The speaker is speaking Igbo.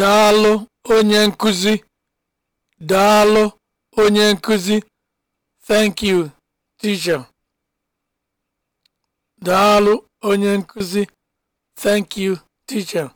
daalụ onye nkuzi daalụ onye nkuzi onye nkuzi thank you teacher